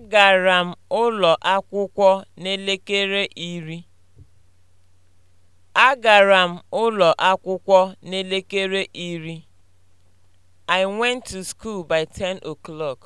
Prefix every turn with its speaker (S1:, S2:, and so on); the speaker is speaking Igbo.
S1: Agara m ụlọ akwụkwọ n'elekere iri. Agara m ụlọ akwụkwọ n'elekere iri. I went to school by 10 o'clock.